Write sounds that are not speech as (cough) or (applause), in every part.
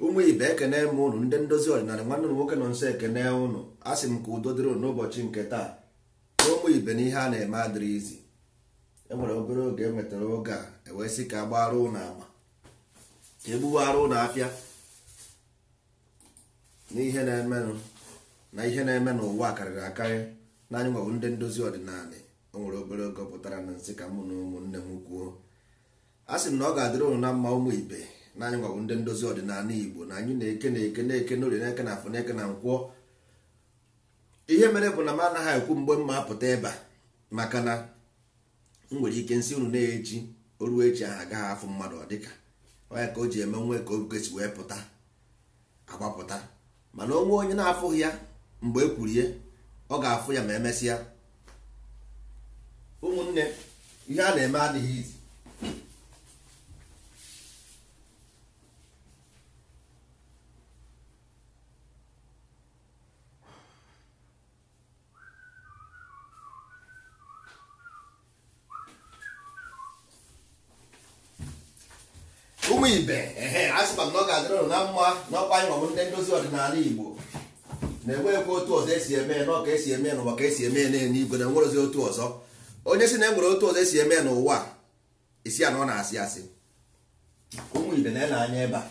ụmụ ibe ekene m ụnụ ndị ndozi ọdịnala nwanne m nwoke nọ nso ekene ụnụ asị m ka udo dịrị ụnụ n'ụbọchị nke taa na ụmụ ibe na ihe a na-eme adịrị izi enwere obere oge enwetara oge a ewee sị ka agbara ụnụ ama egbuwara ụnụ afịa n'ihe na-emenụ na ihe na-eme n'ụwa karịrị akarị naanya anyị nwebụ ndị ndozi ọdịnala o nwere obere oge pụtara na nsị ka mụ na ụmụnne m kwuo a sị m na ọ ga-adịrị ụnụ na mma ụmụ ibe na anyị ndị ndozi ọdịnala igbo na anyị na-eke na-eke na-eke n'orie na-eke na afọ na-eke na nkwọ ihe mere bụ na m anaghị ekwu mgbe mma apụta ebe a maka na m nwere ike nsị unu na-echi oruo echi ahụ agaghị afụ mmadụ ọ dịka onye ka o ji eme nwe ka oge si wee pụta agbapụta mana onwe onye na-afụghị ya mgbe e kwurie ọ ga-afụ ya ma emesịa ụmụnne ihe a na-eme adịghị izi ụmụ ibe a sị m na ọ ga-adịrị na mma n'ọkwa anyị nwabụ ndị ndozi ọdịnala igbo na-enweghịkwa otu ọzọ esi eme n'ọka esi eme n'ụwa ka esi eme na-enye n'eluigwe na enwerozi otu ọzọ onye si na enwere otu ọzọ esi eme n'ụwa isi anọ na-asị asị ụmụ ibe na-ene anya ebe a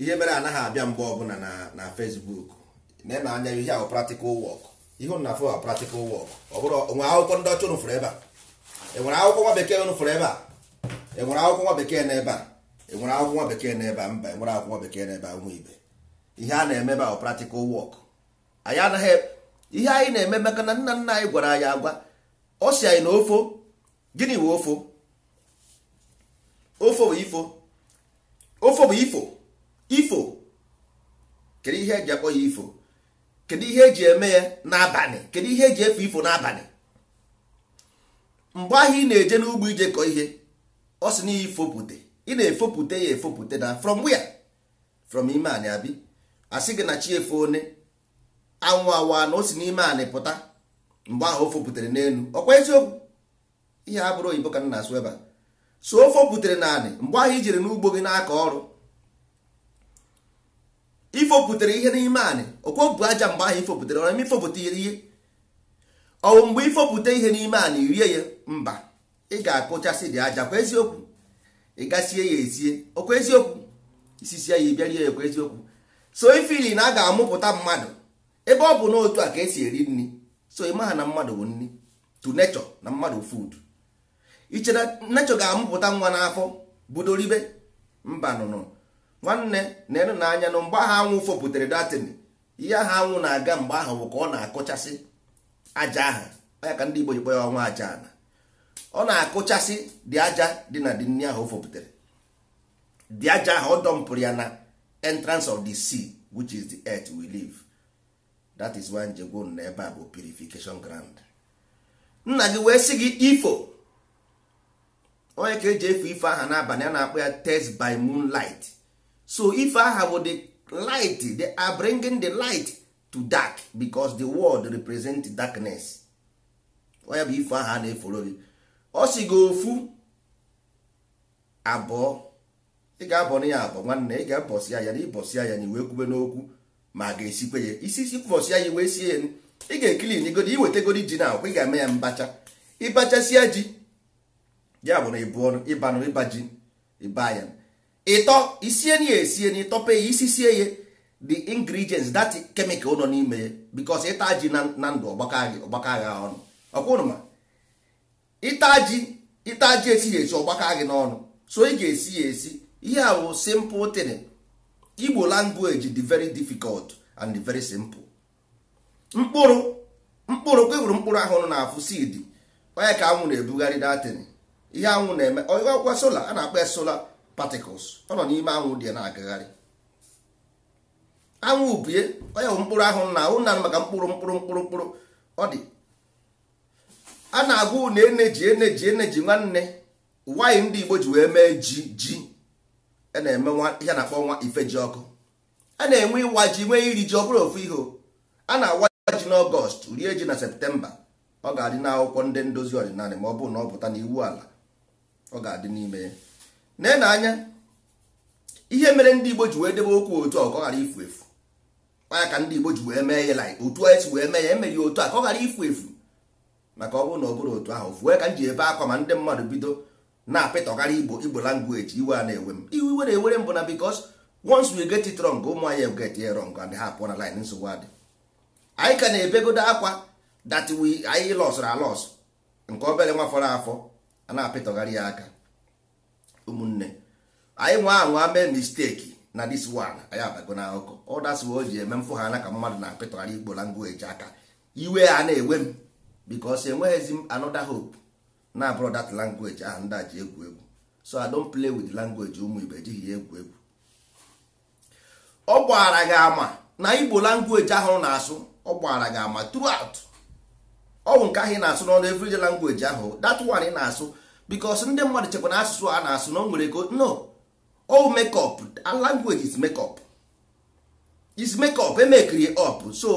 ihe mere anaghị abịa mgbe ọbụla na na Facebook na-ene anya ihe ahụ practical work ihe na afọ practical work ọ bụrụ nwere akwụkwọ ndị ọcha ụnụ ebe a enwere akwụkwọ nwa bekee ụnụ ebe a enwere akwụkwọ nwa bekee na ebe a enwere akwụkwọ bekee n'ebe a mba enwere akwụkwọ bekee n'ebe a nwa ibe ihe a na-eme ebe ahụ practical work anyị anaghị e, ihe anyị na-eme maka na nna nna anyị gwara anyị agwa ọ si anyị na ofo gịnị bụ ofo ofo bụ ifo ofo bụ ifo ifo kedu ihe eji akpọ ya ifo kedu ihe eji eme ya n'abalị kedu ihe eji efe ifo n'abalị mgbe ahụ ị na-eje n'ugbo ije kọ ihe ọ sị na ifo pụte ị na-efopụta ya efopụta na from where from ime anyị abi asị gị na chi efe one anwụ awa na o si n'ime anyị pụta mgbe ahụ o fopụtere n'elu ọkwa eziokwu ihe a bụrụ oyibo ka na-asụ ebe a so o fopụtere naanị mgbe ahụ i jere n'ugbo gị n'aka ọrụ ifopụtere ihe n'ime anyị okwo aja mgbe ahụ ifopụtere ọrụ eme ifopụta ihe ọwụ mgbe ifopụta ihe n'ime anyị rie ya mba ị ga-akụchasị dị aja kwa eziokwu ị gasie ya esie okwu eziokwu isisie ya ịbịarie ya okwu eziokwu so ifili na a ga-amụpụta mmadụ ebe ọ bụ n'otu a ka esi eri nri so ị na mmadụ bụ nri to nature na mmadụ food ichere nature ga-amụpụta nwa n'afọ budoribe mba nụnụ nwanne na enu na anya nụ mgbe ahụ anwụ fopụtara datin ihe ahụ anwụ na-aga mgbe ahụ bụ ka ọ na-akụchasị aja aha ya ka ndị Igbo ji kpọ ya ọnwa aja ana ọ na-akụchasị dị aja dị na dị nri ahụ o dị aja ahụ ọ dọmpụrụ ya na entrance of the sea which is the earth we live that is why njegwon na ebe a purification ground nna gị wee sị gị ifo onye ka eji efu ife aha n'abalị ya na-akpọ ya test by moonlight so ife aha bụ the light the are bringing the light to dark because the world represent darkness onye bụ ife aha na-eforo gị ọ sị gị ofu abụọ ị ga na ya abụọ nwanne ị ga-abọsị ya na ịbọsị ya na iwe kwube n'okwu ma ga-esikwe ya isi isi bọsị ya iwe sie ị ga-ekili n'igodi iwetegodi ji na akwụkwọ ị ga-eme ya mbacha ịbachasịa ji ya bụ na ịbụọ ịbanụ ịba ji ịba ya ịtọ isie na ya esie na ịtọpe ya isi sie ya the ingredients that chemical nọ n'ime ya bikos ịta ji na ndụ ọgbakọ agha ọnụ ọkwa ịta ji esi ji esighị esi ọgbaka gị n'ọnụ so ị ga-esi ya esi ihe a bụ simple tin igbo language dị very difficult and very simple mkpụrụ mkpụrụ kweburu mkpụrụ ahụrụ na-afụ onye ka anwụ na-ebugharị datin ihe anwụ na-eme ọgwa sola a na-akpọ ya sola particles ọ nọ n'ime anwụ dị na-agagharị anwụ bie onye bụ mkpụrụ ahụrụ na ahụ na maka mkpụrụ mkpụrụ mkpụrụ mkpụrụ ọ dị a na-agwa unu eneji eneji eneji nwanne nwanyị ndị Igbo ji wee mee ji ji e a na-eme ihe na-akpọ nwa ife ji ọkụ a na-enwe ịwa ji nwee iri ji ọ bụrụ ofu ihe a na-awa ji n'ọgọst rie ji na septemba ọ ga-adị n'akwụkwọ ndị ndozi ọdịnala ma ọ bụrụ na ọ pụta n'iwu ala ọ ga-adị n'ime ya na anya ihe mere ndị Igbo ji wee debe okwu otu ọ ka ọ ghara ifu efu ya ka ndị Igbo ji wee mee ya otu anyị e si wee mee ya emeghị otu a ka ọ ghara ifu efu maka ọ bụrụ na ọ bụrụ otu ahụ fue ka m ji ebe akwa ma ndị mmadụ bido na-apịtọgara igbo igbo language iwe a na-ewe m iwe iwe na-ewere m bụ na because once we get it wrong ụmụ anyị get it wrong and ha pụọ na line nsogbu adị anyị ka na-ebegodo akwa that wi anyị lọsụrụ alọsụ nke obere nwa fọrọ afọ a na-apịtọgharị ya aka ụmụnne anyị nwa anwa mee misteki na this one anyị abago na akụkọ ọ o ji eme mfụ ha na ka mmadụ na-apịtọgharị igbo language aka iwe a na-ewe m because enweghịzi anoda hope na abụrụ that language ahụ ndị a ji egwu egwu so I don't play with language ụmụ Igbo ejighị ya egwu egwu ọ gbara gị ama na Igbo language ahụ na-asụ ọ gbara gị ama throughout ọwụ nke ahụ ị na-asụ n'ọnụ everyday language ahụ that one na-asụ because ndị mmadụ chekwa na asụsụ a na-asụ na o nwere ego no O oh, make up language is make is make up emekiri up so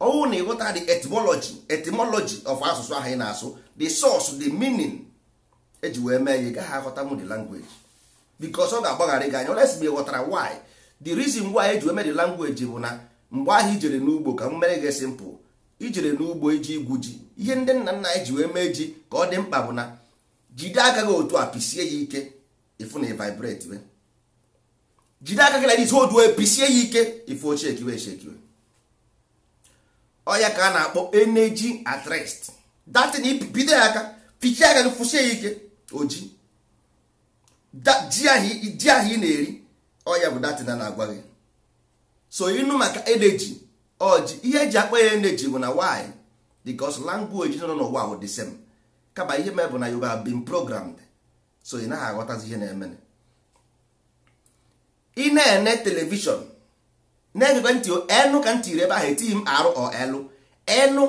ọnwụ na ịghọta the etymology etymology of asụsụ ahụ ị na-asụ the source the meaning eji wee mee ya ị gaghị aghọta the language because ọ ga-agbaghara gị anya oles mgbe ghọtara why the reason why eji wee mee the language bụ na mgbe ahụ ijere n'ugbo ka m mere gị simple ijere n'ugbo iji igwu ji ihe ndị nna nna anyị e ji wee mee ji ka ọ dị mkpa bụ na jide aka gị otu a pisie ya ike ịfụ na vibrate jide aka gị na this hold pisie ya ike ifu ochie ekiwe ọya ka a na-akpọ energy at rest datin bido ya aka pichie aka gị kwụsie ya ike oji ji ahụ ị na-eri ọya bụ datin a na-agwa gị so ịnụ maka energy oji ihe eji akpọ ya energy bụ na why because language nọ n'ụwa bụ the same kaba ihe mee bụ na you have been programmed so ị naghị aghọtazi ihe na-eme ị na-ene telivishọn na-egekwe ntị enụ ka ntị ebe ahụ etighi m arụ ọ elụ enụ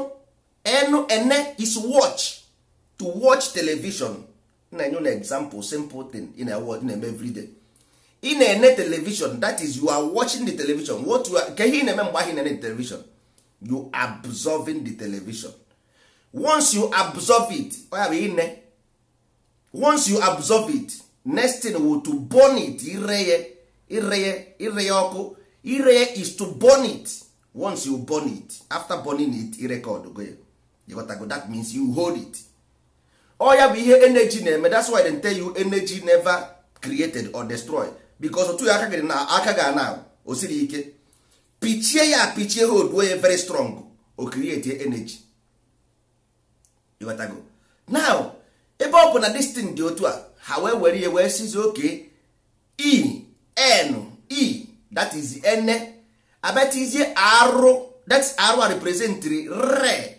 enụ ene is watch to watch television na-enye na example simple thing in a ewe na-eme everyday ị na-ene television that is you are watching the television what you are ke ihe ị na-eme mgbe ahụ na-ene television you absorbing the television once you absorb it ọ ya ine once you absorb it next thing will to burn it ire ya ire ya ire ya ọkụ ire is to burn it once you burn it after burning it record go ya ịghọtago that means you hold it ọ ya bụ ihe energy na-eme that's why they tell you energy never created or destroyed because otu aka gị na aka ga na o siri ike pichie ya pichie hold wey very strong o create energy go now ebe ọ bụ na destin dị otu a ha wee were ihe wee sizi oke e n e that is ene abetizie arụ that's arụ a represent re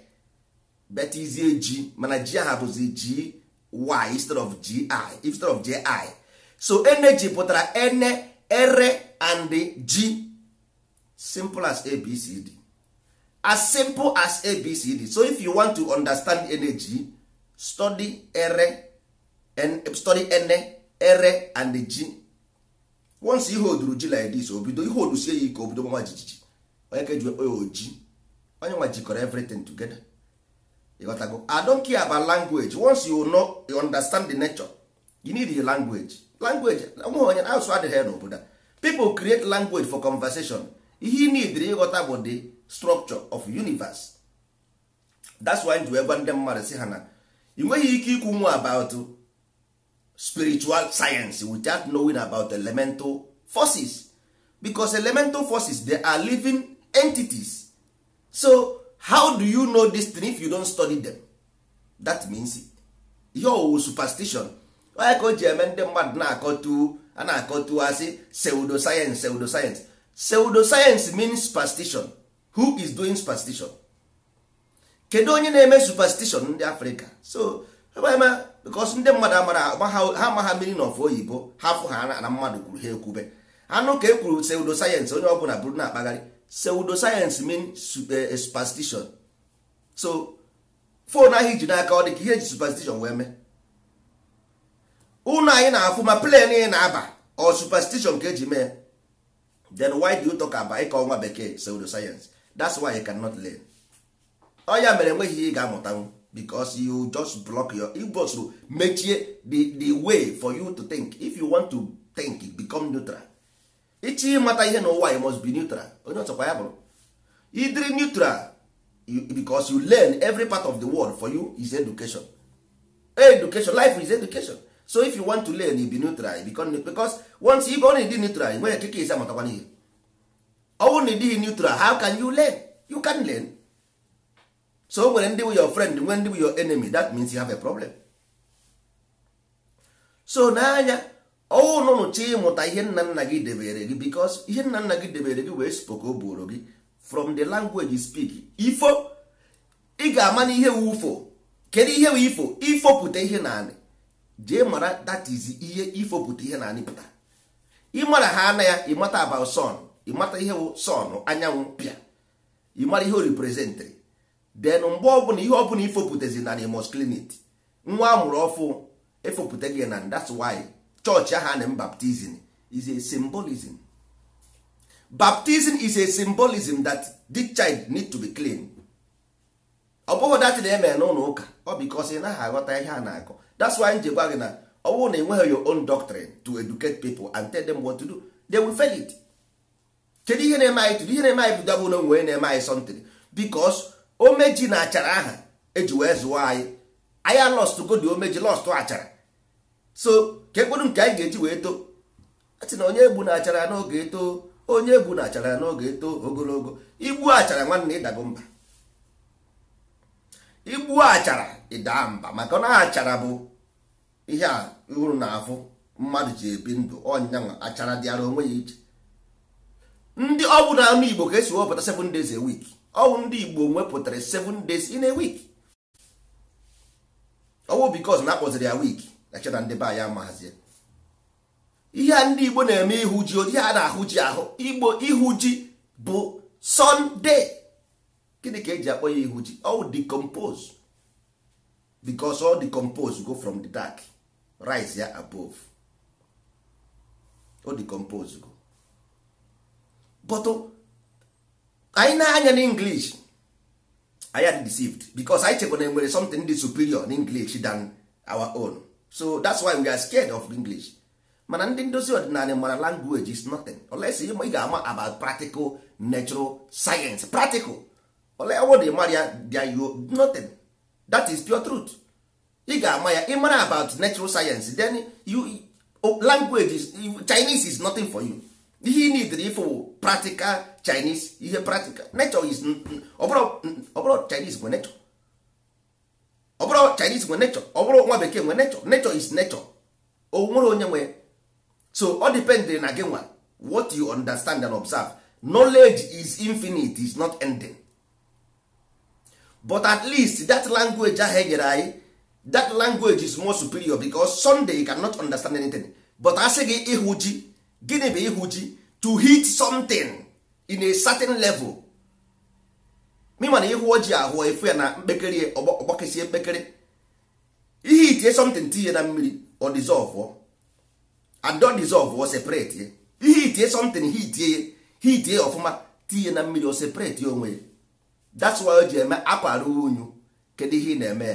betizie ji mana ji aha bụzi ji y instead of gi instead of ji so energy pụtara ene ere and g simple as abcd as simple as abcd so if you want to understand energy study ere and study ene ere and g once ihe oduru ji like this obido ihe odusie ya ike obido gbanwa jijiji onye ka eji ekpe oji onye nwa jikọrọ everything together ịghọtago I don't care about language once you know you understand the nature you need the language language nwe onye asụ adịghị ya n'obodo a people create language for conversation ihe ị nidiri ịghọta bụ the structure of universe that's why ji wee gwa ndị mmadụ si ha na ị nweghị ike ikwu nwa about spiritual science without knowing about elemental forces because elemental forces they are living entities so how do you know this thing if you don't study them that means ihe owu superstition onye ka o ji eme ndị mmadụ na-akọtu a na-akọtu asị pseudo science pseudo science pseudo science means superstition who is doing superstition kedu onye na-eme superstition ndị Africa? so eme. because ndị mmadụ amara ha amaha mmiri na ọfụ oyibo ha fụ ha na mmadụ kwuru ha ekwube anụ ka e kwuru pseudo sayensị onye ọbụla bụrụ na-akpagharị pseudo sayensị mean eh, eh, superstition so fon ahụ iji n'aka ọ dị ka ihe eji superstition wee mee ụlọ anyị na-afụ ma plen ị na-aba ọ superstition ka eji mee then why do you talk about ịka ọnwa bekee pseudo sayensị that's why you cannot learn ọ ya mere enweghị ihe ị ga amụtanwụ because you just block your igbo to mechie the, the way for you to think if you want to think become neutral ịchọ ịmata ihe n'ụwa you must be neutral onye ọchọkwa ya bụrụ idiri neutral because you learn every part of the world for you is education education life is education so if you want to learn you be neutral become because once you go na neutral nwere ekike isi amatakwana ihe ọ bụrụ na ịdịghị neutral how can you learn you can learn so o nwere ndị bụ your friend nwee ndị bụ your enemy that means you have a problem so n'anya ọnụnụ oh, chi ịmụta ihe nna nna gị debere gị because ihe nna nna gị debere gị wee spoko bụrụ gị from the language you speak ifo ị ga-ama na ihe wufo kedu ihe wee ifo ifopụta ihe naanị jee mara that is ihe ifopụta ihe naanị pụta ịmara ha ana ya ịmata about sun ịmata ihe wụ sun anyanwụ pịa ịmara ihe o representịrị then mgbe ọbụla ihe ọbụla ifopụtazi na you must clean it nwa amụrụ ọfụ efopụta gị na that's why chọọchị ahụ na baptism is a symbolism baptism is a symbolism that this child need to be clean ọ bụghị dat na eme n'ụlọ ụka ọ bikos ị naghị aghọta ihe a na-akọ that's why nje gwa gị na ọ bụrụ na enweghị your own doctrine to educate people and tell them what to do they will fail it kedu ihe na-eme anyị tụrụ ihe na-eme anyị bụdabụ na onwe na-eme anyị something because omeji na achara aha eji wee zụwa anyị anyị alọstụgo dị omeji lọstụ achara so ka nke anyị ga-eji wee too atị na onye egbu na achara n'oge eto onye egbu na achara n'oge etoo ogologo igbu achara nwanne ịdago mba igbu achara ịdaa mba maka na achara bụ ihe a hụrụ na afụ mmadụ ji ebi ndụ ọnyanwa achara dịara onwe ya iche ndị ọ bụ na anụ Igbo ka esi wepụta seven days a wiki. Ọnwụ ndị igbo wepụtara 7 days in a week ọnwụ because na akpọziri ya week na chena ndị be anyị amahazie ihe a ndị igbo na-eme ihu ji ihe a na-ahụ ji ahụ igbo ihu ji bụ sunday gịnị ka eji akpọ ya ihu ji ọwụ decompose because go from the dark rise ya above o anyị na-anya na english anyị are deceived because anyị chekwa na nwere something dị superior na english than our own so that's why we are scared of english mana ndị ndozi ọdịnala mara language is nothing unless ị ga-ama about practical natural science practical olewod mara ya dyo nothing that is pure truth ị ga-ama ya ịmara about natural science then you oh, language is, chinese is nothing for you ihe ị nidiri ịfụ practical Chinese ihe practical nature is ọbụrụ Chinese nwe nature ọbụrụ Chinese nwe nature ọbụrụ nwa bekee nwe nature nature is nature o nwere onye nwe so ọ depend na gị nwa what you understand and observe knowledge is infinite is not ending but at least that language ahụ enyere anyị that language is more superior because Sunday you cannot understand anything but asị gị ịhụ ji gịnị bụ ịhụ chi to hit something in a certain level mịma na ịhụ ojii ahụ efu ya na mkpekere ọgbakesi mkpekere ihe itinye something tinye na mmiri ọ dissolve adọ ọ separate ya ihe itinye something he itinye he itinye ọfụma tinye na mmiri ọ separate ya onwe ya that's why o ji eme akwa ruru unyu kedu ihe ị na-eme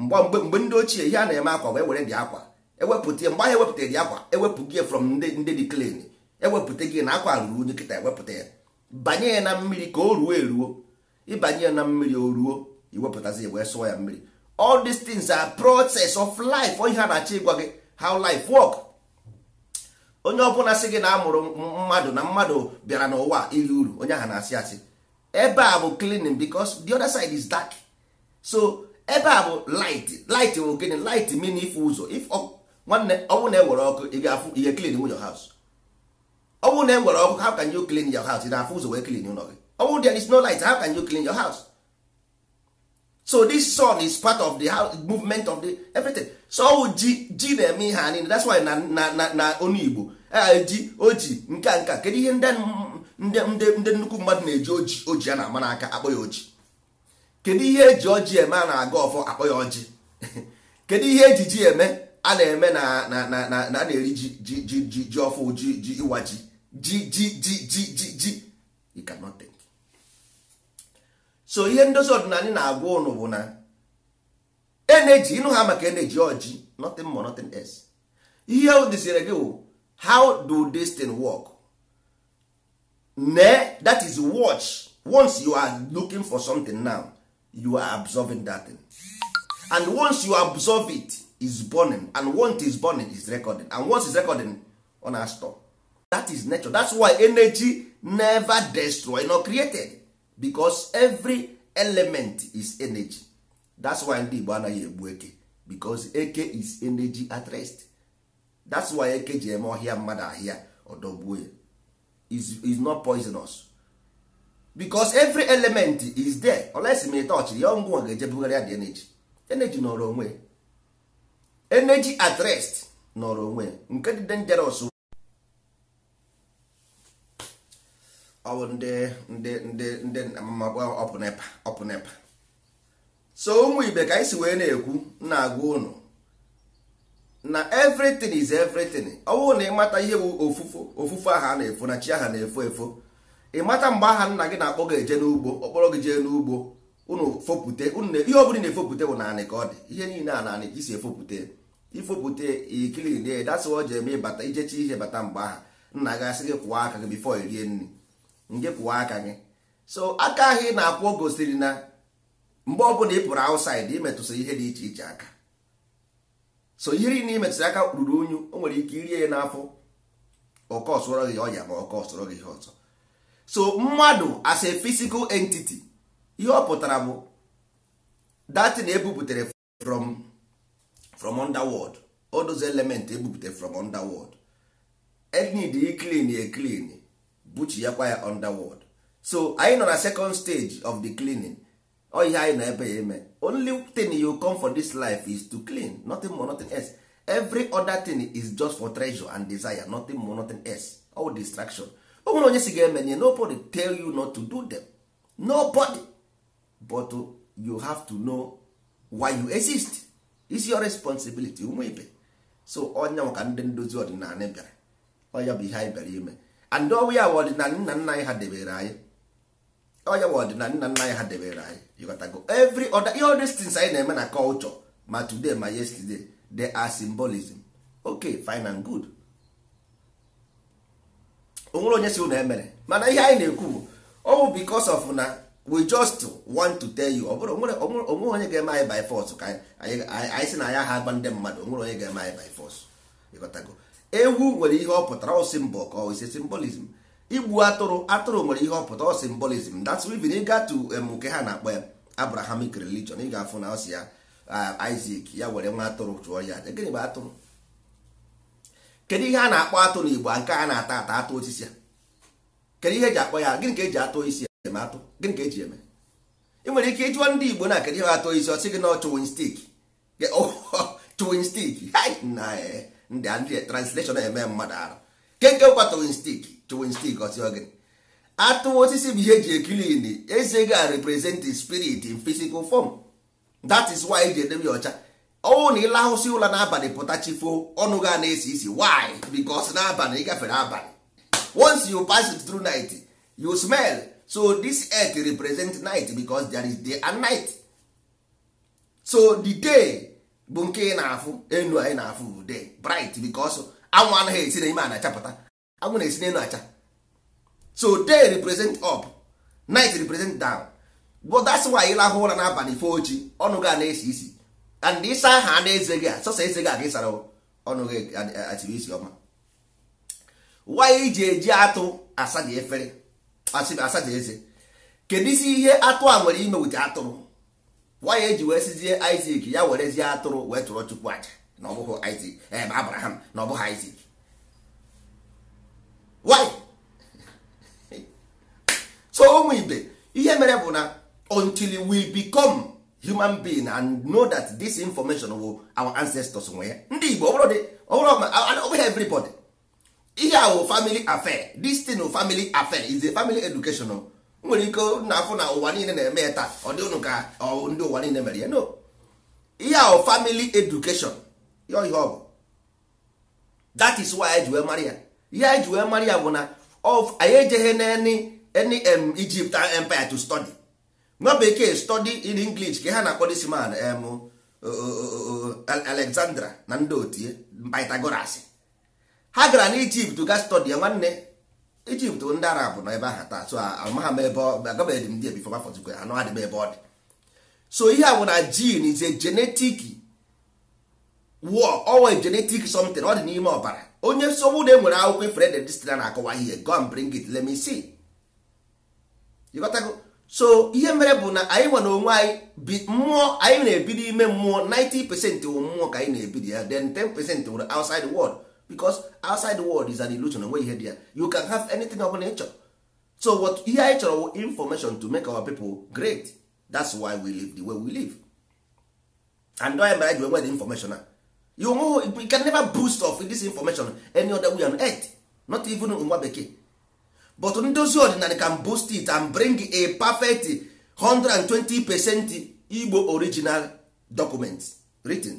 mgbe mgbe ndị ochie ihe a na-eme akwa wee were dị akwa ewepụta mgbe ahụ ewepụta gị akwa ewepụ gị from ndị dị clean ewepụta gị na akwa ruru kịta ewepụta ya banye ya na mmiri ka o ruo eruo ịbanye ya na mmiri o ruo iwepụtazi wee sụọ ya mmiri all these things are process of life onye a na-achọ ịgwa gị how life work onye ọbụla sị gị na amụrụ mmadụ na mmadụ bịara n'ụwa iri uru onye ahụ na-asị asị ebe a bụ cleaning because the other side is dark so ebe a bụ light light bụ gịnị light mean ife ụzọ if nwanne ọnwụ na-ewere ọkụ ị ga-afụ ihe clean nwunye house ọnwụ na-ewere ọkụ how ka you clean your house ị na-afụ ụzọ wee clean ụlọ gị ọnwụ there is no light ka can you clean your house so this sun is part of the house, movement of the everything so ọwụ ji ji na-eme ihe anyị that's why na na na na onu Igbo ji oji nka nka kedu ihe ndị ndị ndị nnukwu mmadụ na-eji oji oji a na-ama n'aka akpọ ya oji kedu ihe eji oji eme a na-aga ọfọ akpọ ya ọjị (laughs) kedu ihe eji ji eme a na-eme na na na-eri ji ji ji ji ọfụ ji ji ịwa ji ji ji ji ji ji ji you cannot think so ihe ndozi ọdịnala na-agwa ụnụ bụ na energy ịnụ ha maka energy ọjị nothing more nothing else ihe dịzire gị bụ how do this thing work ne that is watch once you are looking for something now you are absorbing that thing and once you absorb it is burning and once is burning is recording and once is recording ọ na stop that is nature that's why energy never destroyed nor created because every element is energy that's why ndị Igbo anaghị egbu eke because eke is energy at rest that's why eke ji eme ọhịa mmadụ ahịa ọdọgbuo ya is not poisonous because every element is there olesi ma ị tọchiri ya ọngwụ ga-ejebugharị ya the energy energy nọrọ onwe ya energy at rest nọrọ onwe nke dị dangerous ọ bụ ndị ndị ndị ndị ọpụ nepa ọpụ nepa so ụmụ ibe ka anyị si wee na-ekwu na-agwa ụnụ na everything is everything ọ bụrụ na ịmata ihe bụ ofufo ofufo aha na-efo na chi aha na-efo efo ịmata mgbe aha nna gị na-akpọ gị eje n'ugbo ọkpọrọ gị jee n'ugbo ụnụ fopute ụnụ ihe ọ bụla na-efopụte bụ naanị ka ọ dị ihe niile a naanị ka isi efopụte ifopụta ikilin ya dasị ọje eme bata ijecha ihe bata mgbe aha nna gị asị gị kwụọ aka gị bifo irie nri nge kwụọ aka gị so aka ahụ ị na-akwụ gosiri na mgbe ọbụla ị pụrụ ausaid imetụsị ihe dị iche iche aka so ihe niile imetụsị aka ruru unyu o nwere ike irie ya n'afọ ọkọ gị ọya ma ọkọ gị ihe ọzọ so mmadụ as a physical entity ihe ọ pụtara bụ na ebupụtara from from underworld all those element ebupute from underworld enid e clean e clean buchiakwa ya underworld so anyị nọ na second stage of the cleaning ọ ihe anyị ebe ya eme only thing you come for this life is to clean nothing more nothing else every other thing is just for treasure and desire nothing more nothing else all distraction o nwere onye si ga nobody tell you not to do them nobody but oh, you have to know why you exist is your responsibility ụmụ ibe so onye maka ndị ndozi ọdịnala bịara ọya bụ ihe anyị bịara ime and ọwụ ya ọdịnala nna nna anyị ha debere anyị ọya bụ ọdịnala nna nna anyị ha debere anyị yọkọtago every other ihe other things anyị na-eme na culture ma today ma yesterday they are symbolism okay fine and good onwere onye si ụlọ emere mana ihe anyị na-ekwu bụ ọ bụ because of na we just want to tell you ọ bụrụ onwere onye ga-eme anyị by force ka anyị sị na ya ha agba ndị mmadụ onwere onye ga-eme anyị by force ịghọtago ewu nwere ihe ọ pụtara ọ symbol ka ọ ise symbolism igbu atụrụ atụrụ nwere ihe ọ pụtara ọ symbolism that's even ga to um, nke ha na-akpọ Abrahamic religion ị ga-afụ na ọ si ya uh, Isaac ya were nwa atụrụ chụọ ya aja gịnị bụ atụrụ kedu ihe a na-akpọ atụrụ na Igbo nke a na-ata ata atụ osisi a kedu ihe eji akpọ ya gịnị ka eji atụ isi eme atụ gịnị ka eji eme ị e nwere ike ịjụọ ndị igbo na kedu ihe atụ isi ọsị gị na chụwin stik (laughs) chụwin stik na e, ndị ndị translation eme mmadụ arụ kenke kwa chụwin stik chụwin stik ọsị gị atụ osisi bụ ihe eji ekilin eze ga represent spirit in physical form that is why eji edebe ya ọcha ọnwụ na ịlahụsị ụla n'abalị pụta chifo ọnụ ga na-esi isi why because n'abalị ị gafere abalị once you pass it through night you smell so this earth represent night because there is day and night so the day bụ nke ị na-afụ enu anyị na-afụ day bright because anwụ anaghị esi n'ime a na-achapụta anwụ na-esi n'elu acha so day represent up night represent down but that's why ị lahụ ụra n'abalị fo ochi ọnụ gị a na-esi isi and ịsa aha na eze gị a sọsọ eze gị a ka ịsara ọnụ gị atiri isi ọma why iji eji atụ asa gị efere asacha eze kedu isi ihe atụ a nwere ime ụdị atụrụ nwa ya eji wee sizie Isaac ya zia atụrụ wee tụrụ chukwu aja na ọ bụghị Isaac ebe eh, Abraham na ọ ha Isaac why (laughs) so ụmụ ibe ihe mere bụ na until we become human being and know that this information will our ancestors nwe ya ndị Igbo ọ bụrụ everybody ihe ahụ family affair this thing family affair is a family educational nwere ike na afụ na ụwa niile na-eme ya taa ọ dị ka ndị ụwa niile mere ya no ihe ahụ family education ya ihe ọ bụ that is why anyị Maria ya ihe anyị ji wee mara ya bụ na anyị ejeghị n'eni any Egypt empire to study nwa bekee study in English ka ha na-akpọ this man Alexandra na ndị otie Pythagoras ha gara na ijipt ga stọdi ya nwanne ijipt ndị arab nọ ebe aha taa so amaghị m ebe agabeghị m ndị ebifo bafọzikwe anọ adịba ebe ọ dị so ihe a bụ na jin is a genetic war owe genetic something ọ dị n'ime ọbara onye nsogbu na enwere akwụkwọ ifere de destina na-akọwa ihe go and bring it let me see ịghọtago so ihe mere bụ na anyị nwere onwe anyị bi mmụọ anyị na-ebi n'ime mmụọ 90 pesent wụ mmụọ ka anyị na-ebi ya then 10 pesent wụrụ outside world because outside the world is an illusion onwe ihe head ya you can have anything ọbụla ị so what ihe anyị chọrọ information to make our people great that's why we live the way we live and onye mere ji nwere information a you know, we can never boost of this information any other way on earth not even nwa bekee but ndozi ọdịnala can boost it and bring a perfect 120 percent Igbo original document written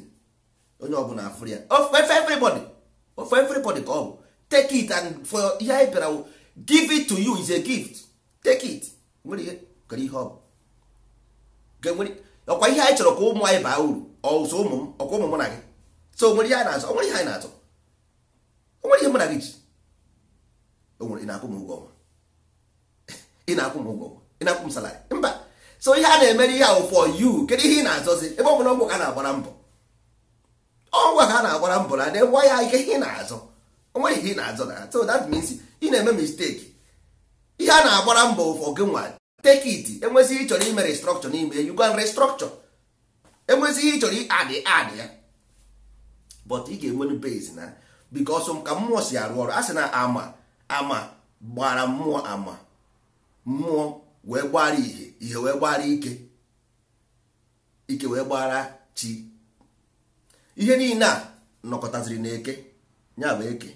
onye ọbụla afụrụ ya of everybody for everybody ka ọ take it and for ihe anyị bịara give it to you is a gift take it nwere ihe kere ihe ọ bụ ọkwa ihe anyị chọrọ ka ụmụ anyị baa uru ọsọ ụmụ m ọkwa ụmụ mụ na gị so nwere ihe anyị na-azụ nwere ihe anyị na-azụ nwere ihe mụ na gị ji onwere (laughs) ị na-akwụ m ụgwọ ọnwa ị na-akwụ m ụgwọ ọnwa ị na-akwụ m salarị mba so ihe a na-emere ihe ahụ for you kedu ihe ị na-azọzi ebe ọ bụla ọgwụ ka na-agbara mbọ ọnwa ha na-agbara mbụ na nwa ya ike ihe na-azọ onweghị ihe ị na-azọ na so that means ị na-eme mistake ihe a na-agbara mbọ ụfọ gị nwa take it enwezi ị chọrọ ime restructure n'ime you can restructure enwezi ihe ị adị adị ya but ị ga-enwe base na because ka mmụọ si arụ ọrụ a sị na ama ama gbara mmụọ ama mmụọ wee gbara ihe ihe wee gbara ike ike wee gbara chi ihe niile a nọkọtaziri n'eke eke eke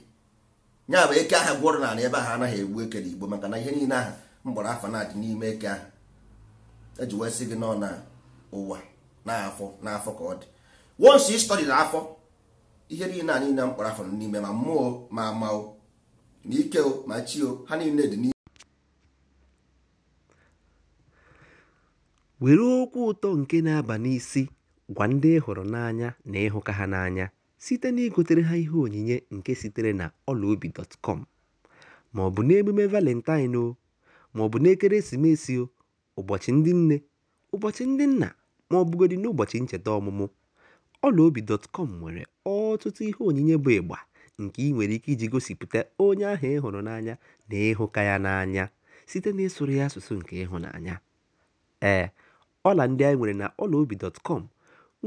ya eke aha gwọrọ n'ala ebe ahụ anaghị egbu eke n'igbo maka na ihe niile aha mgbọrọ afọ na-adị n'ime eke ahụ eji wee sị gị nọ na ụwa n'afọ n'afọ ka ọ dị wonsi ịstọdị na afọ ihe niile a niile mkpọrọ afọ n'ime ma mmụọ ma ama o ma ike o ma chi o ha niile dị n'ime were okwu ụtọ nke na-aba n'isi Gwa ndị ị hụrụ n'anya na ịhụka ha n'anya site na igotere ha ihe onyinye nke sitere na ọlaobi.com ma ọ bụ n'emume Valentine ma ọ bụ n'ekeresimesi, ụbọchị ndị nne, ụbọchị ndị nna ma ọ bụgodị n'ụbọchị ncheta ọmụmụ, dọtkọm nwere ọtụtụ ihe onyinye bụ ịgba nke ị nwere ike iji gosipụta onye ahụ ị hụrụ n'anya na ịhụka ya n'anya site n'ịsụrụ ya asụsụ nke ịhụnanya. Ee, ọla ndị anyị nwere na ọlaobi.com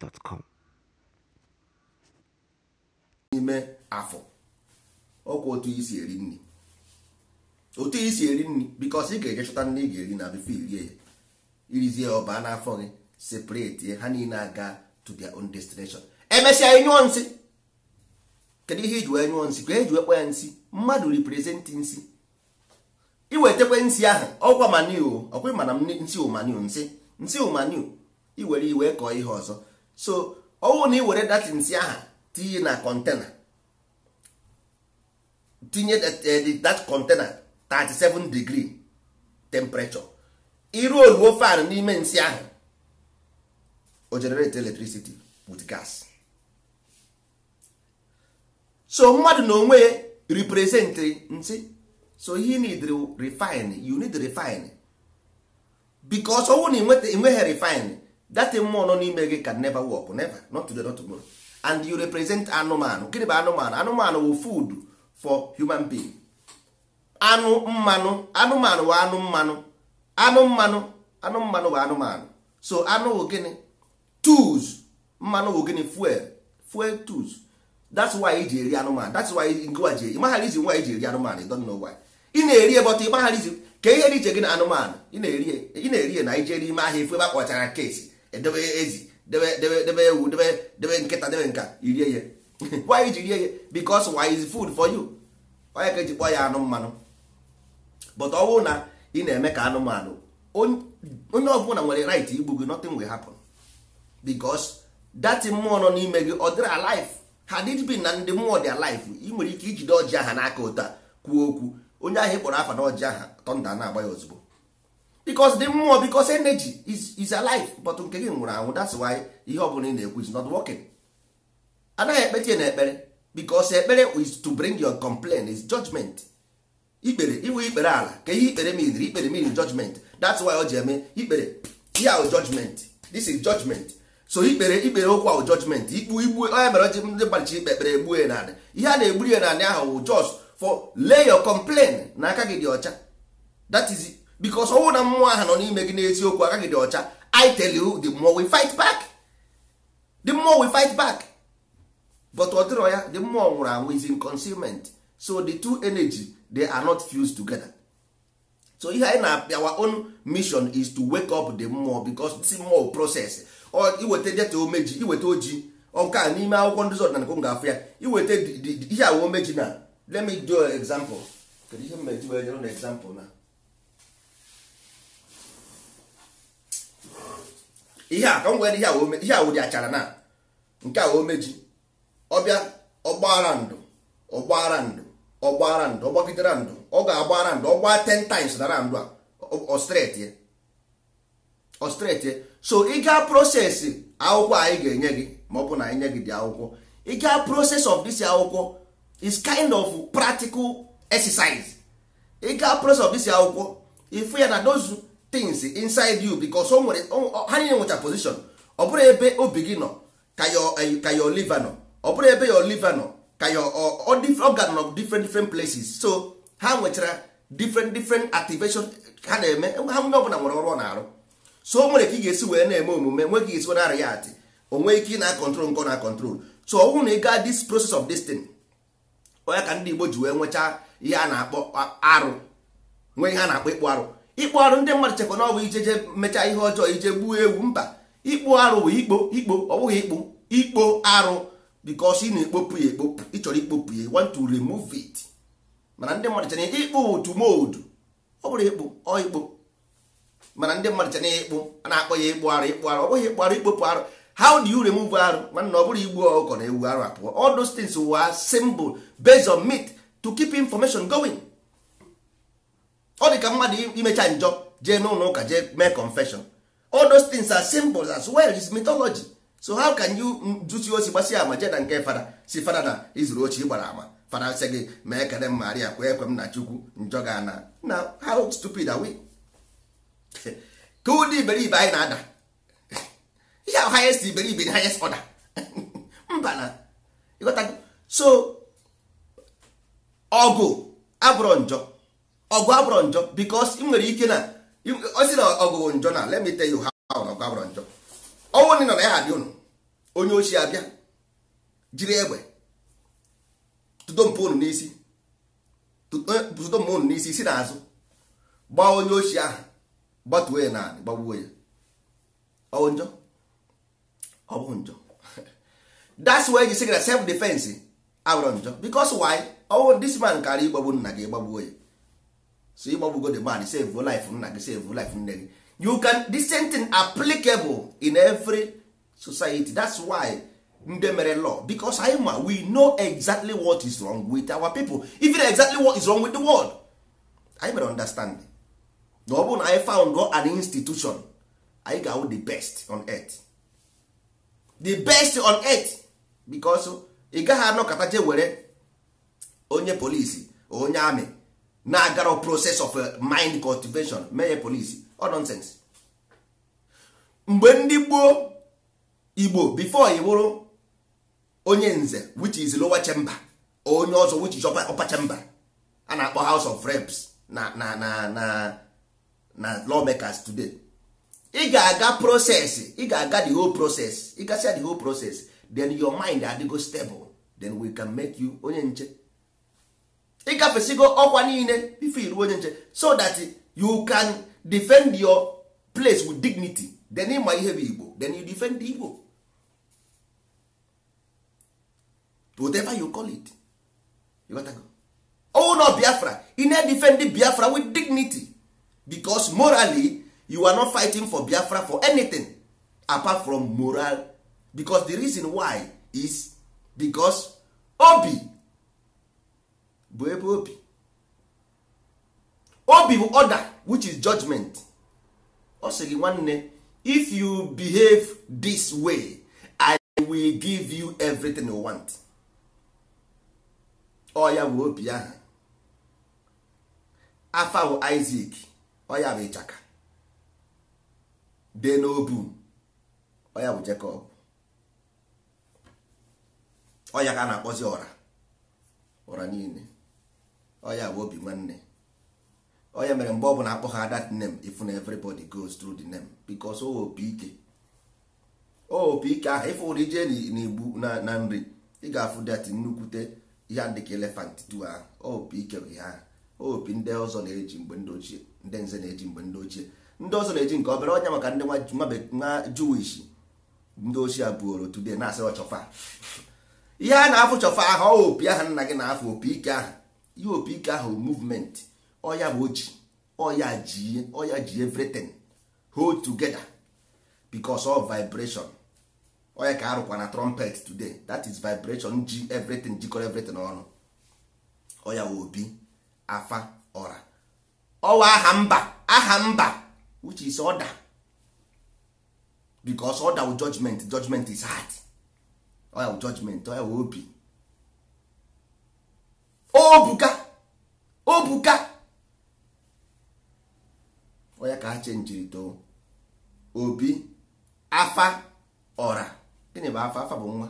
gmail.com n'ime afọ ọkwa otu isi eri nri otu isi eri nri bikos ị ga-eje chọta nri ị ga-eri na bifo irie ya irizie ọba n'afọ gị separate ha niile aga to their own destination emesịa ịnyụọ nsị kedu ihe iji wee nyụọ nsị ka eji ekwe ya nsị mmadụ representị nsị iwetekwe nsị ahụ ọkwa maniu ọkwa ịmana nsị ụmaniu nsị nsị ụmaniu iwere iwe kọọ ihe ọzọ so ọnwụ na ị were nsi nsị aha tinye na kọntena tinye that eh, container 37 degree temperature iru oluo fan n'ime nsị ahụ o generate electricity with gas so mmadụ na onwe represent nsị so he need refine you need refine because ọnwụ na enweghị refine that mmụọ nọ n'ime gị can never work never not today not tomorrow and you represent anụmanụ gịnị bụ anụmanụ anụmanụ wụ food for human being anụ mmanụ anụmanụ wụ anụ mmanụ anụ mmanụ anụ mmanụ wụ anụmanụ so anụ wụ gịnị tools mmanụ wụ gịnị fuel fuel tools that's why iji eri anụmanụ that's why ngwa ji ịmaghara izi nwa iji eri anụmanụ don't know why ị na-eri ebọta ịmaghara izi ka ihe dị iche gị na anụmanụ ị na-eri e. na ije n'ime ahịa efu ebe akpọchara kesi edebe ezi debe ewu debe nkịta debe nka irie ya (laughs) why iji rie ya because why is food for you onye ka eji kpọọ ya anụ mmanụ but ọ bụrụ na ị na-eme ka anụmanụ onye ọbụla nwere right igbu gị nothing will happen because that mmụọ nọ n'ime gị ọ dịrị alive ha did be na ndị mmụọ dị alive ị nwere ike ijide ọjị aha n'aka ụta kwuo okwu onye ahụ ị kpọrọ afa na ọjị aha tọnda na-agba ya ozugbo because the mmụọ because energy is, is alive but nke gị nwụrụ anwụ that's why ihe ọbụla ị na-ekwu is not working anaghị ekpeti na ekpere because ekpere is to bring your complaint is judgment ikpere iwu ikpere ala ka ihe ikpere mean ikpere mean judgment that's why o ji eme ikpere ya o judgment this is judgment so ikpere ikpere okwu ahụ judgment ikpu igbu onye mere oji ndị gbachi ikpe ekpere egbu ya naanị ihe a na-egburi ya naanị ahụ just for lay your complaint n'aka gị dị ọcha that is because ọnwụ na mmụọ ahụ nọ n'ime gị n'eziokwu agaghị dị ọcha i tell you the more we fight back the more we fight back but ọ dịrọ ya the mmụọ nwụrụ anwụ is in concealment so the two energy they are not fused together so ihe anyị na our own mission is to wake up the mmụọ because this mmụọ process iweta deta omeji iweta oji nke a n'ime akwụkwọ ndị ọdịnala nke m ga-afụ ya iweta ihe awa omeji na let me do example kedu ihe m meji example na ihe a ka m were ihe a achara na nke a omeji ọbịa ọgbaghara ndụ ọgbaghara ndụ ọgbaghara ndụ ọgbagidere ndụ ọ ga-agbaghara ndụ ọgba ten times dara ndụ a ọstretie so ị gaa prosesi akwụkwọ anyị ga-enye gị ma ọ bụ na anyị nye gị dị akwụkwọ ị gaa proses of this akwụkwọ is kind of practical exercise ị gaa proses of this akwụkwọ ịfụ ya na dozu things inside you because o nwere ha niile nwecha position ọ bụrụ ebe obi gị nọ ka your eh, liva nọ ọ bụrụ ebe your liva nọ ka your organ nọ different different places so ha nwechara different different activation ha na-eme ha onye ọbụla nwere ọrụ ọ na-arụ so o nwere ka ị ga-esi wee na-eme omume nwe ka ị ga-esi narị ya atị onwe ike ị na-akọntrol nke na-akọntrol so ọ bụrụ na ị gaa this process of this thing onye ka ndị Igbo ji wee nwechaa ihe a na-akpọ arụ nwee ihe a na-akpọ ịkpụ arụ ikpo arụ ndị mmadụ chekwa na ọ bụ ijeje mechaa ihe ọjọọ ije gbuo ewu mba ikpo arụ bụ ikpo ikpo ọ bụghị ikpo ikpo arụ because ị na-ekpopu ya ekpopu ịchọrọ ikpopu ya want to remove it mana ndị mmadụ chana ikpo otu modu ọ bụrụ ikpo ọ ikpo mana ndị mmadụ chana ikpo a na-akpọ ya ikpo arụ ikpo arụ ọ bụghị ikpo arụ ikpopu arụ how do you remove arụ mana ọ bụrụ igbu ọkọ na ewu arụ apụọ all those things were simple based on myth to keep information going. ọ dị ka mmadụ imecha njọ jee n'ụlọ ụka jee mee confession all those things are symbols as well is mythology so how can you dusi osi gbasi ama jee nke Fara si Fara na izuru ochie gbara ama Fara sị gị mee ekele m maria kwe ekwe m na chukwu njọ ga ana na how stupid are we (laughs) ka ụdị iberibe anyị na-ada (laughs) ihe highest iberibe na highest order (laughs) mba na ịghọtago so ọgụ abụrụ njọ ọgụ abụrụ njọ because ị nwere ike na osi na ọgụ njọ na let me tell you how na ọgụ abụrụ njọ ọnwụ nọ na ya abịa ụnụ onye ochi abịa jiri egbe tụdo mpa ụnụ n'isi tụdo mpa ụnụ n'isi si n'azụ gbaa onye ochi ahụ gbatuo ya na gbagbuo ya ọwụ njọ ọ bụ njọ (laughs) that's why you say na self defense abụrụ njọ because why ọwụ this man karịa ịgbagbu nna gị gbagbuo ya so ịgbagbugo the man save life nna gị save life nne gị you can this same thing applicable in every society that's why ndị mere law because anyị ma we know exactly what is wrong with our people even exactly what is wrong with the world anyị mere understand na ọ bụrụ na anyị found an institution anyị ga-awụ the best on earth the best on earth because ị gaghị anọkọta je were onye polisi onye amị na-agara process of uh, mind cultivation mee polisi ọ mgbe ndị gboo igbo before ị bụrụ onye nze which is lower chamber onye ọzọ which is upper chamber a na-akpọ house of reps na na na na na lawmakers today ị ga-aga process ị ga-aga the whole process ị gasịa the whole process then your mind adịgo stable then we can make you onye nche ịgafesigo ọkwa niile bifo iruo onye nche so that you can defend your place with dignity then ịma ihe bụ igbo then you defend the igbo whatever you call it you got go. oh no biafra ị na-defend biafra with dignity because morally you are not fighting for biafra for anything apart from moral because the reason why is because obi bụ ebe obi obi bụ order which is judgment ọ sị gị nwanne if you behave this way i will give you everything you want ọ ya bụ obi ahụ afa bụ Isaac ọ ya bụ ịchaka dee n'obu ọ ya bụ Jacob ọ ya ka na-akpọzi ọra ọra niile oya bụ obi nwanne onye mere mgbe ọ bụla akpọ ha that name if na everybody goes through the name because o opi ike o opi ike ahụ ịfụ ụdị ije n'igbu na nri ị ga-afụ dat nnukwute ihe dị ka elefant tu ahụ opi ike bụ ihe ahụ opi ndị ọzọ na-eji mgbe ndị ochie ndị nze na-eji mgbe ndị ochie ndị ọzọ na-eji nke obere ọnya maka ndị nwa juwish ndị ochie abụoro today na-asị ọchọfa (laughs) ihe a na-afụ chọfa ahụ opi ahụ nna gị na-afụ opi ike ahụ ihe ahụ movement ọya bụ oji ọya ji ọya ji everything hold together because of vibration oya ka arụkwa na trumpet today that is vibration ji everything jikọrọ everything ọnụ ọya obi afa ọra ọwa aha mba aha mba which is order because order wụ judgment judgment is hard wụ judgment ọya obi obuka obuka onye ka ha chenjiri too obi afa ọra gịnị bụ afa afa bụ nwa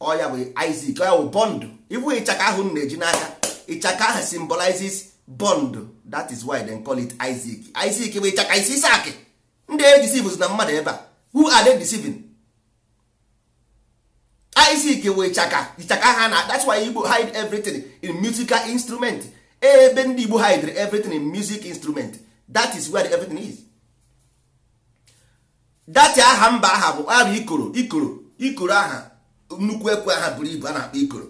ọya bụ Isaac ọya bụ bọndụ ịbụ ịchaka ahụ m na-eji n'aka ịchaka ahụ symbolizes bọndụ that is why they call it Isaac Isaac bụ ịchaka isi isi akị ndị e deceive na mmadụ ebe a who are they deceiving Isaac wee chaka ichaka ha na that's why Igbo hide everything in musical instrument ebe ndị Igbo hide everything in music instrument that is where everything is dati aha mba aha bụ aha ikoro ikoro ikoro aha nnukwu ekwe aha buru ibu a na-akpọ ikoro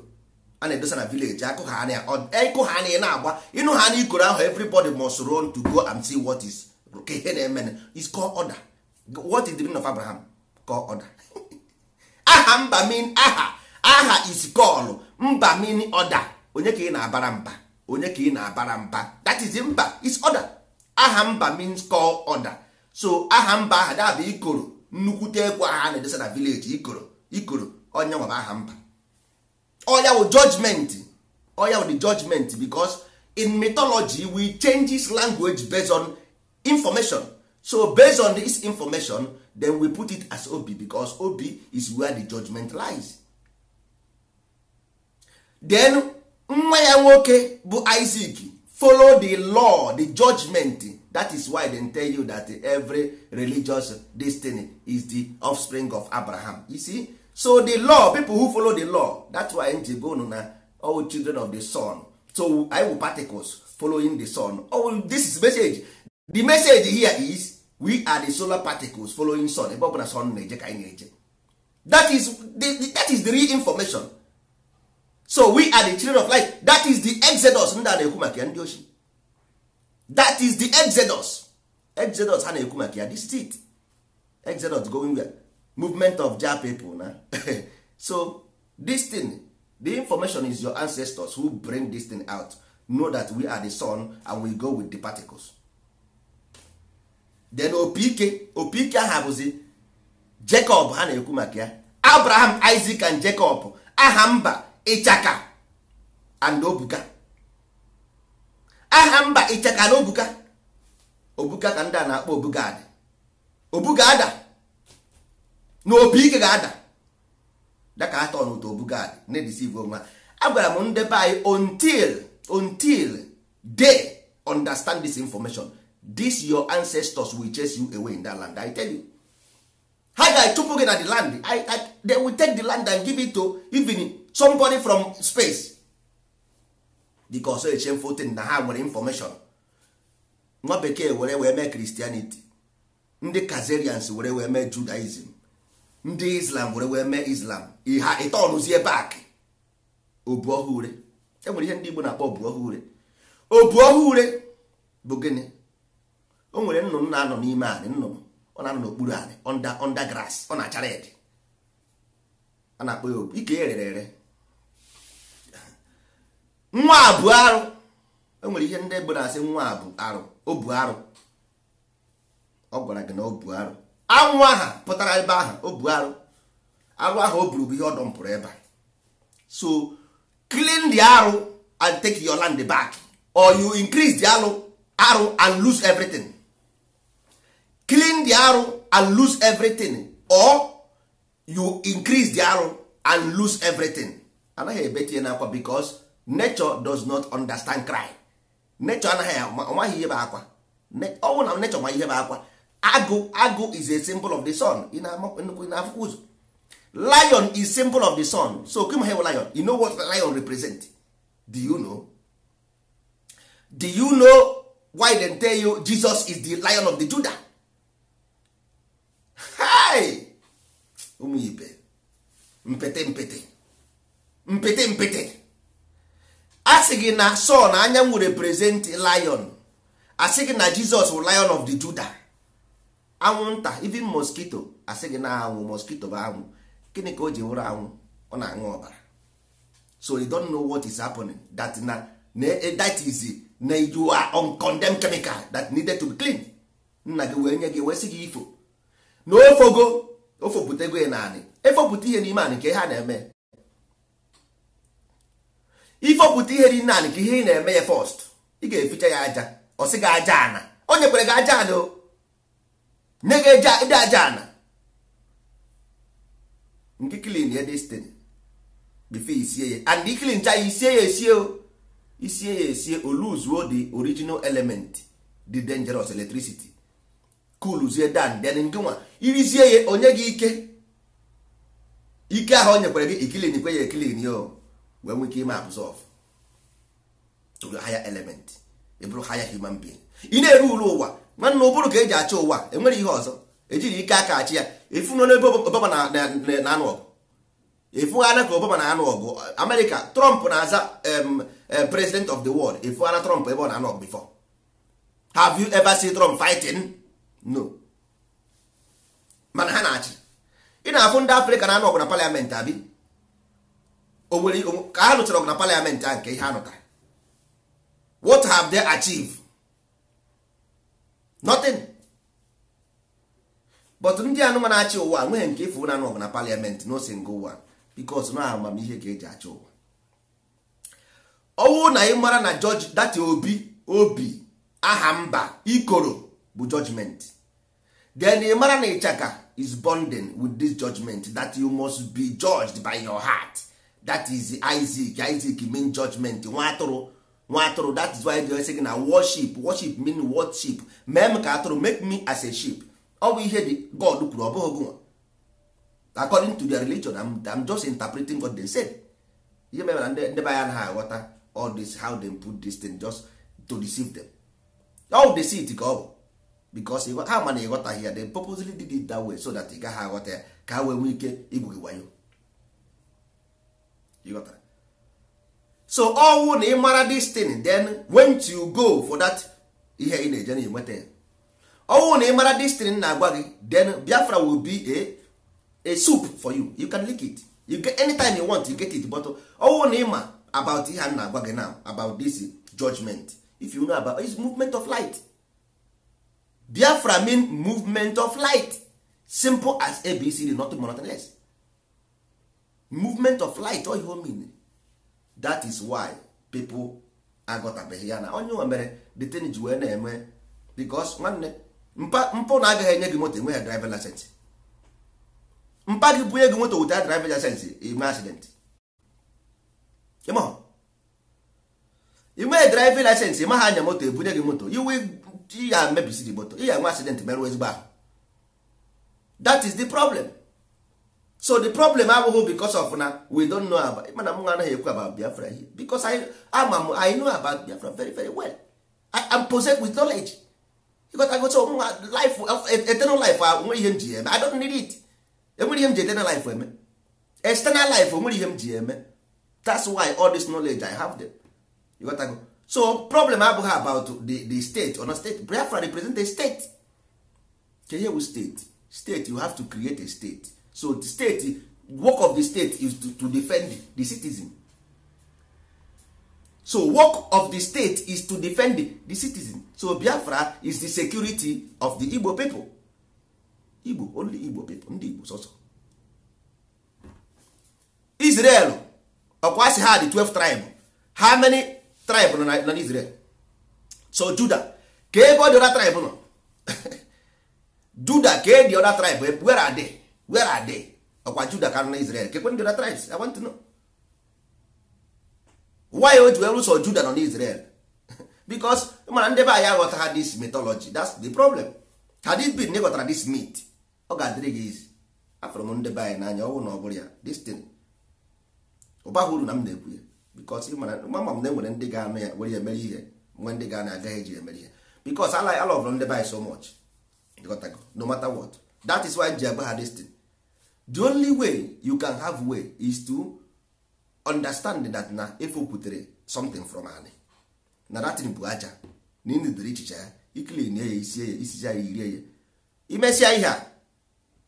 a na-edosa na village ịkụ ha na na-agba ịnụ ha na ikoro ahụ everybody must run to go and see what is ihe na-eme is called order what is the meaning of Abraham called order aha mba mean aha aha is call mba mean order onye ka ị na-abara mba onye ka ị na-abara mba that is mba is order aha mba means call order so aha mba aha dabụ ikoro nnukwute ekwu aha na-edesa na village ikoro ikoro onye nwa aha mba oya wụ judgment oya wụ the judgment because in mythology we changes language based on information so based on this information then we put it as obi because obi is where the judgment lies then nwa ya nwoke bụ isaac follow the law the judgment that is why they tell you that every religious destiny is the offspring of abraham you see so the law people who follow the law that's why nji go na all children of the sun so i will particles following the sun oh, this is message the message here is we are the solar particles following sun ebe ọ bụla sun na-eje ka anyị na-eje that is the, that is the real information so we are the children of light that is the exodus ndị a na-ekwu maka ya ndị ochie that is the exodus exodus ha na-ekwu maka ya exodus going where movement of ja people na (laughs) so this thing the information is your ancestors who bring this thing out know that we are the sun and we go with the particles then opike opike aha bụzi jacob ha na-ekwu maka ya abraham isaac and jacob aha mba ịchaka and obuka aha mba ịchaka na obuka obuka ka ndị a na-akpọ obuga ada obuga ada na opike ga-ada daka atọ n'ụtọ obuga ada na-edisive onwe agwara m ndebe anyị until until dey understand this information this your ancestors will chase you away in that land i tell you ha ga-achụpụ gị na the land I, I, they will take the land and give it to even somebody from space because a shameful fotin na ha nwere information nwa bekee were wee mee Christianity ndị Kazarians were wee mee Judaism ndị Islam were wee mee Islam ha ịtọnụzie back obu ọhụrụ enwere ihe ndị Igbo na-akpọ obu ọhụrụ bụ gịnị o nwere nnụnụ na-anọ n'ime anị nnụnụ ọ na-anọ n'okpuru anị under grass ọ na-achara ede a na-akpọ ya obu ike ya rere ere nwa a bụ arụ e nwere ihe ndị ebe na-asị nwa a bụ arụ o bu arụ ọ gwara gị na o bu arụ anwụ aha pụtara ebe ahụ o bu arụ arụ ahụ o buru bụ ihe ọ dọmpụrụ ebe a so clean the arụ and take your land back or you increase the arụ arụ and lose everything clean the arrow and lose everything or you increase the arrow and lose everything anaghị ebetinye n'akwa because nature does not understand cry nature anaghị amaghị ihe bụ akwa ọ na nature ma ihe bụ akwa agụ agụ is a symbol of the sun Ị na-afụkwa ụzọ lion is symbol of the sun so kim hew lion you know what lion represent do you know do you know why they tell you jesus is the lion of the judah hai ụmụ ibe mpete mpete mpete mpete a sị gị na sọ na anyanwụ represent lion asị gị na jizọs bụ lion of the juda anwụnta even mosquito asị gị na anwụ mosquito bụ anwụ gịnị ka o ji nwụrụ anwụ ọ na-aṅụ ọbara so you don't know what is happening that na eh, that is na you are on condemned chemical that needed to be clean nna gị wee nye gị wee sị gị ifo na ofogo ofopụtago ya naanị efopụta ihe n'ime anị ka ihe a na-eme ifopụta ihe dị naanị ka ihe ị na-eme ya fọst ị ga-eficha ya aja ọsị gị aja ana o nyekwere gị aja ana o nye gị ịdị aja ana nke klin ya destin bife isie ya and iklin cha isie ya esie isie ya esie o lose the original element the dangerous electricity kuluzie dan then ngịnwa irizie ya onye gị ike ike ahụ o nyekwara gị ikilin kwe ya ekilin yo wee nwee ike ime absorb to the higher element ịbụrụ higher human being ị na-eru uru ụwa nwanne ụbụrụ ka eji achị ụwa enwere ihe ọzọ ejiri ike aka achị ya efunọ n'ebe obama na-anụ ọgụ efughana ka obama na-anụ ọgụ amerịka trump na-aza president of the world efughana trump ebe ọ na-anụ ọgụ before have you ever seen trump fighting? no mana ha na-achị ị na-afụ ndị afrịka na-anụ ọgụ na paliamentị abi onwere ka ha lụchara ọgụ na paliamentị a nke ihe ha nụtara what have they achieved nothing but ndị anụma na-achị ụwa nweghị nke ịfụ na-anụ ọgụ na paliamentị no nga ụwa bikos na amamihe ka eji achị ụwa ọnwụ na ị mara na jọji data obi obi aha mba ikoro bụ jọjmenti then ị mara na ịchaka is bonding with this judgment that you must be judged by your heart that is Isaac Isaac mean judgment nwa atụrụ nwa atụrụ that is why they say na worship worship mean worship mee m ka atụrụ make me as a sheep ọ bụ ihe di God kwuru ọ bụghị gụnwa according to their religion I'm, I'm just interpreting what they said ihe mere na ndị be anya ha aghọta all this how they put this thing just to deceive them all seed ka ọ bụ because ha ma na ịghọtaghị ya they purposely did it that way so that ị gaghị aghọta ya ka ha wee nwee ike igwu so ọnwụ na ịmara this thing then when you go for that ihe ị na-eje na enweta ya ọnwụ na ịmara this thing na-agwa gị then Biafra will be a a soup for you you can lick it you get anytime you want you get it but ọnwụ na ịma about ihe a na-agwa gị now about this judgment if you know about it's movement of light biafra mean movement of light simple as abcd nothing more nothing less movement of light all you mean that is why pipo aghọtabeghị ya na onye nwe mere the ten ji wee na-eme because nwanne mpụ na agaghị enye gị moto enweghị driver license mpa gị bunye gị moto without driver license ime accident ịmaghị driver license ịmaghị anya moto ebunye gị moto you will ị ya mebisiri moto ị ya enwe accident merụ ezigbo ahụ that is the problem so the problem abụghị because of na we don't know about mana m anaghị ekwu about biafra here because I, ama m i know about biafra very very well i am possessed with knowledge ịgotagoso mwa life e, eternal life nwere uh, ihe m ji eme i don't need it enwere ihe m ji eternal life eme eh, external life onwere ihe m ji eme eh? that's why all this knowledge i have them ịgotago so problem abụghị about the, the state or not state biafra represent a state keyewu state state you have to create a state so the state work of the state is to, to defend the citizen so work of the state is to defend the citizen so biafra is the security of the igbo people igbo only igbo people ndị igbo sọsọ israel ọkwa si ha the 12 tribe how many tribe nọ na Israel so Juda ka ebe ọ dị ọda tribe nọ (laughs) Juda ka e dị ọda tribe e- where are they where are ọkwa Juda ka na Israel kekwe ndị ọda tribes I want to know why o ji wee rụsọ Juda nọ n'Israel? Israel (laughs) because mana ndị be anyị aghọta ha this mythology that's the problem had it been ịghọtara this myth ọ ga-adịrị gị izi afụrụ m ndị be anyị n'anya ọnwụ na ọ bụrụ ya this thing ụba uru na m na-ekwu ya because mama m na enwere ndị ga-anụ ya were emere ihe nwe ndị ga-anụ agaghị eji emere ihe because ala alọvụrụ ndị by so much no matter what that is why ji agba ha destin the only way you can have way is to understand that na putere something from ani na datin bụ aja na ịnụdere ichicha ya ikilin ya isi ya isicha ya irie ya imesịa ihe a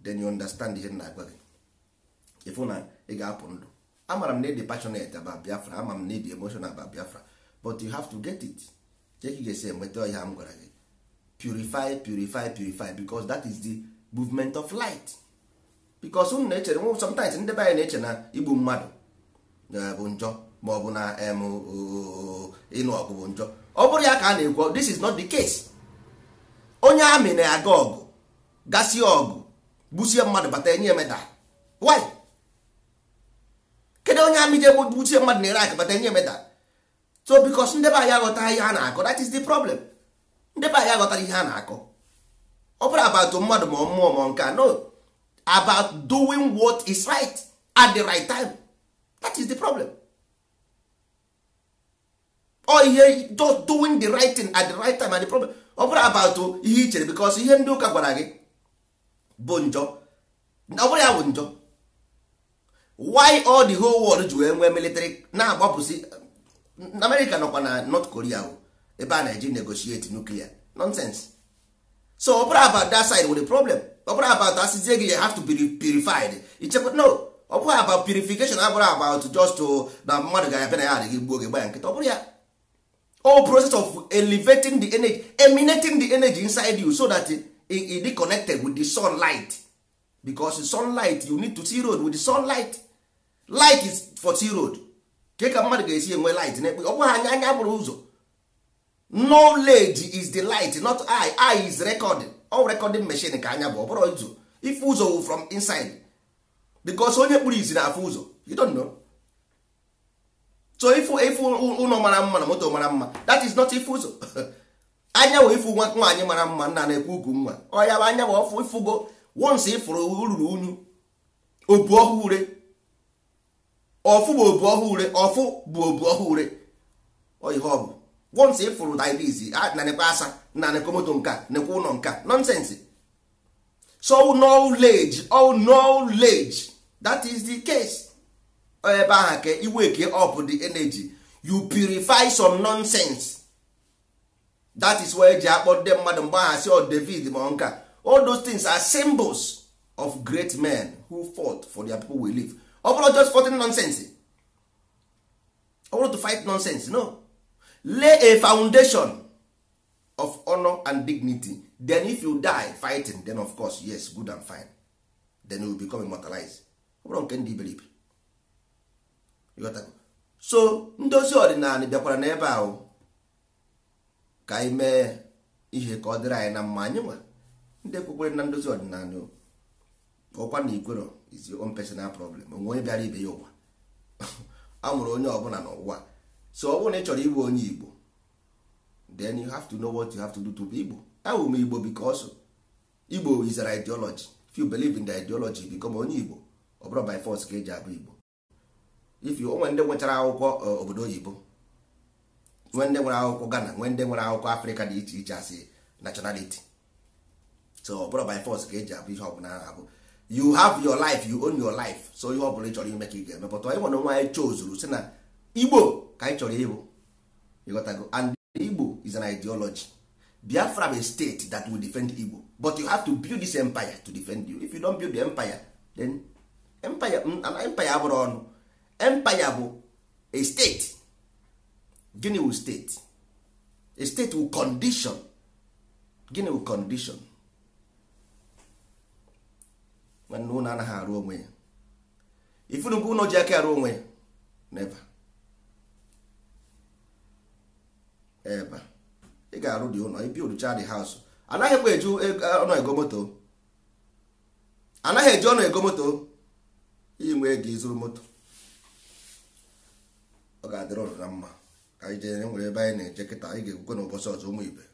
then you understand ihe na agwa gị ịfụ na ị ga-apụ ndụ amara m na ịdị passionate about biafra ama m na ịdị emotional about biafra but you have to get it ka ga-esi enweta ọhịa m gwara gị purify purify purify because that is the movement of light because unu na-echere nwe sometimes ndị be anyị na-eche na igbu mmadụ bụ njọ ma ọ bụ na ịnụ ọgụ bụ njọ ọ bụrụ ya ka a na-ekwu this is not the case onye amị na-aga ọgụ gasịa ọgụ gbusie mmadụ bata enye emeda why kedu onye amị ji egbuchie mmadụ na-ere akabata nye meta so bikos ndị be anyị aghọta ihe a na-akọ that is the problem ndị be anyị aghọtara ihe a na-akọ ọ bụrụ about mmadụ ma mmụọ ma nke no about doing what is right at the right time that is the problem ọ ihe doing the right thing at the right time and the problem ọ bụrụ about ihe i chere bikos ihe ndị ụka gwara gị bụ njọ ọ bụrụ ya bụ njọ why all the whole world ji wee nwee military na-agbapụsị America nọkwa na North Korea ebe a na-eji negotiate nuclear nonsense so ọbụrụ about that side with the problem ọbụrụ about about asịzie gị you have to be purified ichekwa no ọ about purification abụrụ about just to na mmadụ ga-abịa na ya adịghị gbuo gị ya nkịta ọbụrụ ya all process of elevating the energy emanating the energy inside you so that it, it, it connected with the sunlight because sunlight you need to see road with the sunlight light is for t road ke ka mmadụ ga-esi enwe light n'ekpe ọ bụghị anya anya bụrụ ụzọ knowledge is the light not I I is recording all recording machine ka anya bụ ọ bụrụ ụzọ ife ụzọ wụ from inside because onye kpụrụ izi na-afụ ụzọ you don't know so ifu ifu ụlọ mara mma na moto mara mma that is not ifu ụzọ (laughs) anya wụ ifu nwa nwaanyị mara mma nna na-ekwu ugwu nwa ọ ya bụ anya bụ ọfụ ifugo once ịfụrụ ururu unyu obu ọhụụ ure ọfụ bụ obu ọhụụ ure ọfụ bụ obu ọhụụ ure ihe ọ bụ wọnsị ịfụrụ diabetes na nekwa asa na nekomoto nka nekwa ụlọ nka nonsense so knowledge all oh, knowledge that is the case ebe ahụ ka iweke up the energy you purify some nonsense that is why eji akpọ ndị mmadụ mgbe aha si oh, david ma nka all those things are symbols of great men who fought for their people we live ọ just fighting nonsense ọ to fight nonsense no lay a foundation of honor and dignity then if you die fighting then of course yes good and fine then you become immortalized ọ nke ndị iberibe so ndozi ọdịnala bịakwara n'ebe ahụ ka anyị mee ihe ka ọ dịrị anyị na mma anyị nwa ndị kwekwere na ndozi ọdịnala ọkwa na ikwero is your own personal problem onwe onye bịara ibe ya ụwa (laughs) a mụrụ onye ọbụla n'ụwa so ọ bụrụ na ị chọrọ ịbụ onye igbo then you have to know what you have to do to be igbo awụ m igbo because igbo is an ideology if you believe in the ideology become onye igbo ọ bụrụ by force ka eji abụ igbo if you ndị nwechara akwụkwọ eh, obodo oyibo nwe ndị nwere akwụkwọ Ghana nwee ndị nwere akwụkwọ Afrịka dị iche iche asị nationality so ọbụrụ by force ka eji abụ ihe ọbụla na-abụ you have your life you own your life so ihe ọbụla ị chọrọ ime ka ị ga-eme pụta ịnwere nwa chozuru si na igbo ka anyị chọrọ ịbụ ịghọtago and igbo is an ideology biafra bụ a state that will defend igbo but you have to build this empire to defend you if you don't build the empire then empire mm, empire abụrụ ọnụ empire bụ a state gịnị will state a state will condition gịnị will condition nwanne ụlọ anaghị arụ onwe ya ifunu mgbe ụlọ ji aka arụ onwe ya n'ebe eba ị ga-arụ dị ụlọ ibi orucha dị haus anaghịkwa eju e, e, ọnụ ego moto anaghị eji ọnụ ego moto iji nwee ego ịzụrụ moto ọ ga-adịrị ọrụ na mma ka anyị jee e nwere ebe anyị na-eje kịta anyị ga-egwukwe n'ụbọchị ọzọ ụmụ ibe